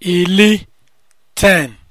ili 10